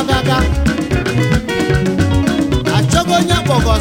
ọgaga achọghị onye akpọgọ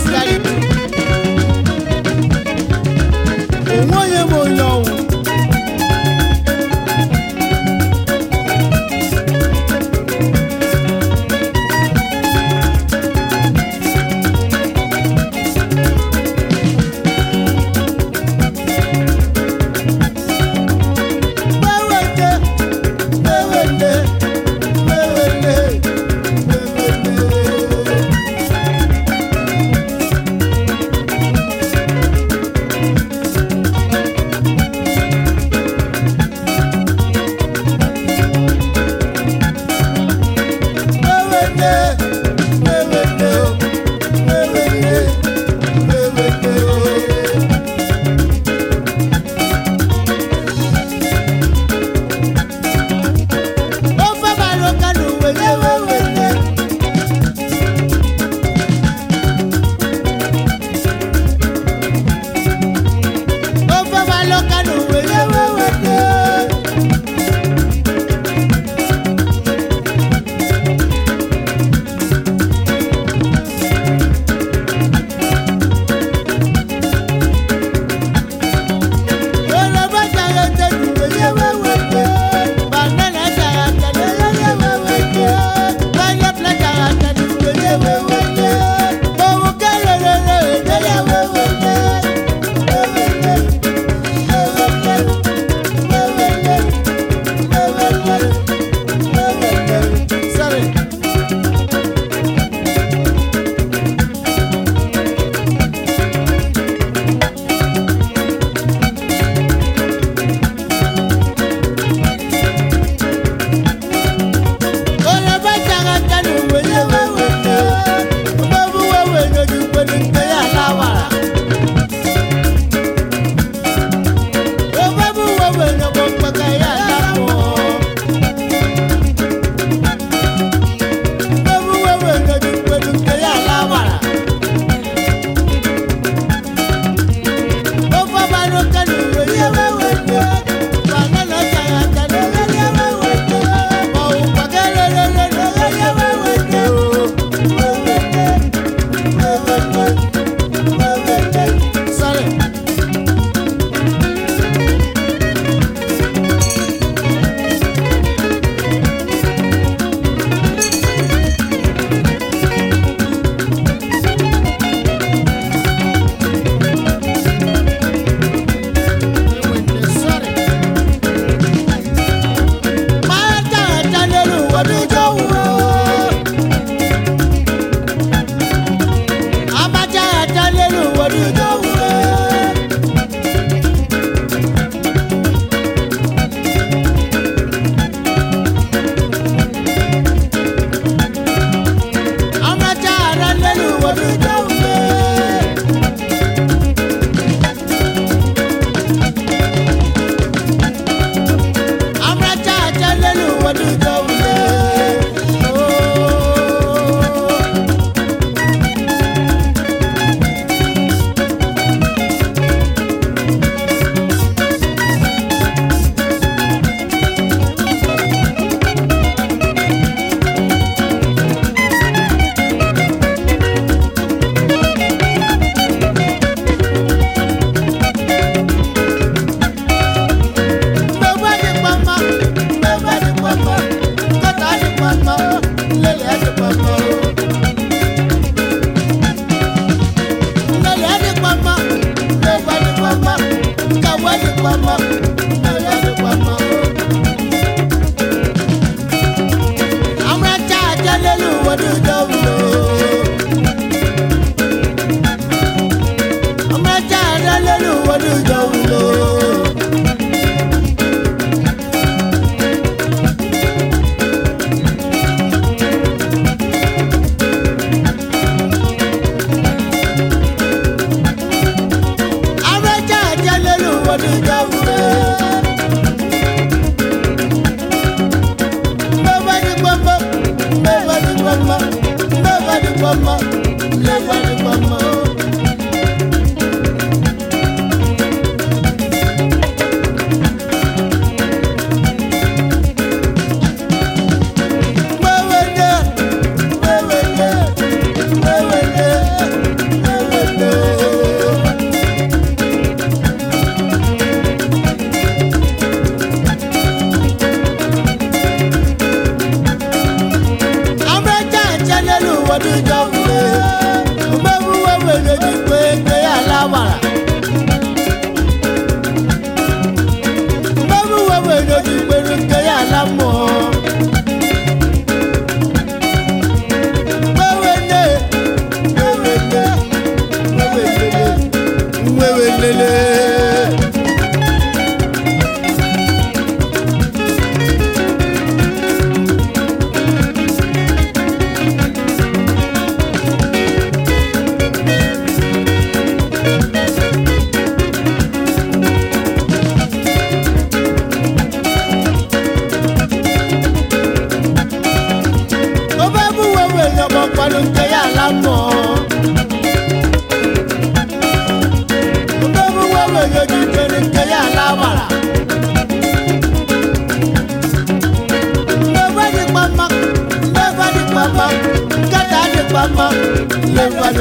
what do you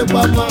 gbama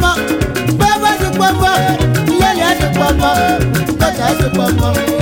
pọ̀pọ̀ bàbá ti pọ̀pọ̀ ìyá ìyá ti pọ̀pọ̀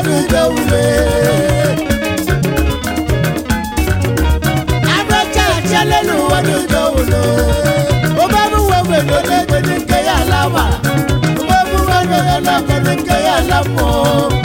onugo ume abachala n'ụwa n'ugo ulo ụbọbụ uwe nwere onye nke ya ala wa ya ala mmụọ